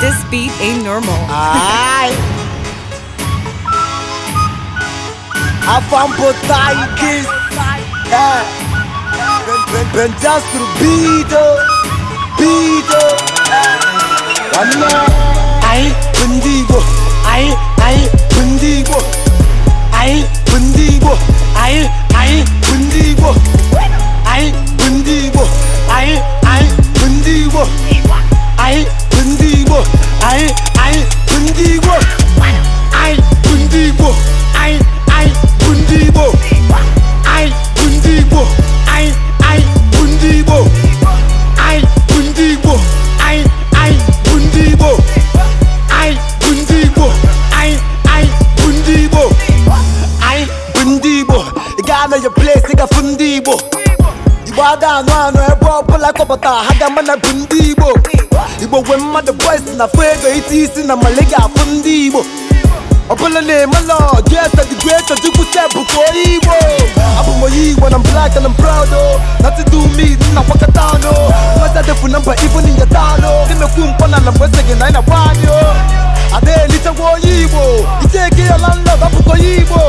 This beat ain't normal. Ay! Afam potaitis! Eh! Pentru bidă! Bidă! Ana! Ai pândigo! Ai, ai pândigo! Ai pândigo! Ai, ai pândigo! Ai Ai, ai Ghana your place nigga fu ndị Igbo Igbo ada anụ anụ ebe ọbụla kọpụta ha ga ama bụ ndị Igbo Igbo gwe mmadụ boys na fụ isi isi na mali ga-afụ ndị Igbo ọbụla na-emelọ jesa digwe chọchukwu sebụ ka onye Igbo abụ m onye Igbo na black and I'm proud o oh. nothing do me nna kwakọta ọnụ mmasị adịfu na mba ibu n'inyata anụ na-emekwu mkpọ na na mgbe sị gị na anyị na-agba anyị ada-elitekwa onye igbo iteke ya na nla onye igbo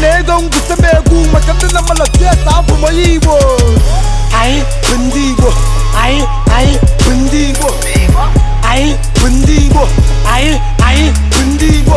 na ego ngwute egwu maka ndị na mmadụ tieta abụ onye igbo anyị bụ ndị igbo anyị anyị bụ ndị igbo anyị bụ ndị igbo anyị anyị bụ ndị igbo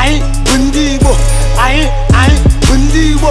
anyị bụ ndị igbo anyị anyị bụ ndị igbo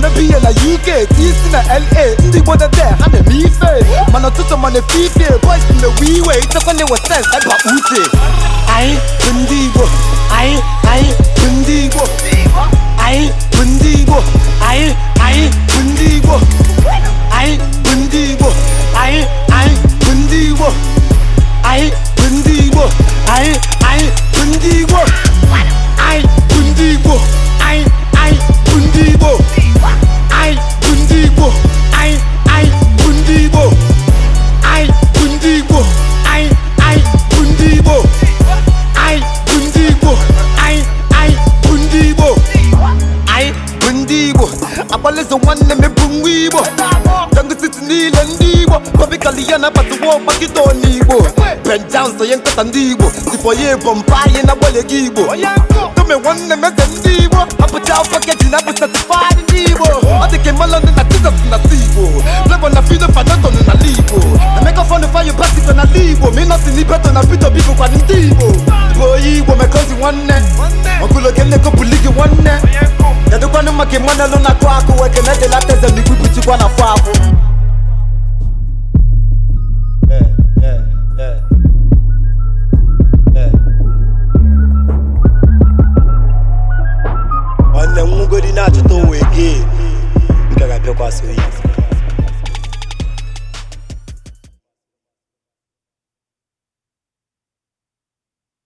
na-eme na UK isi na LA ndị Igbo ha na-eme ife mana ụtụtụ mana fife na-ewe iwe ndị Igbo anyị ndị ndị Igbo ọkpalịzụ nwanne mepụ nwa igbo dọngụsiti niile ndị igbo kọbikali na nabatụwa ọgbakịta ọna igbo benjam sonye nkata ndị igbo sipọ ya ebọmpa anyị na-agbalị gị igbo tome nwanne m eze ndị igbo apụcha afọ keji na-abụ satifadị ndị igbo ọ dị kwa so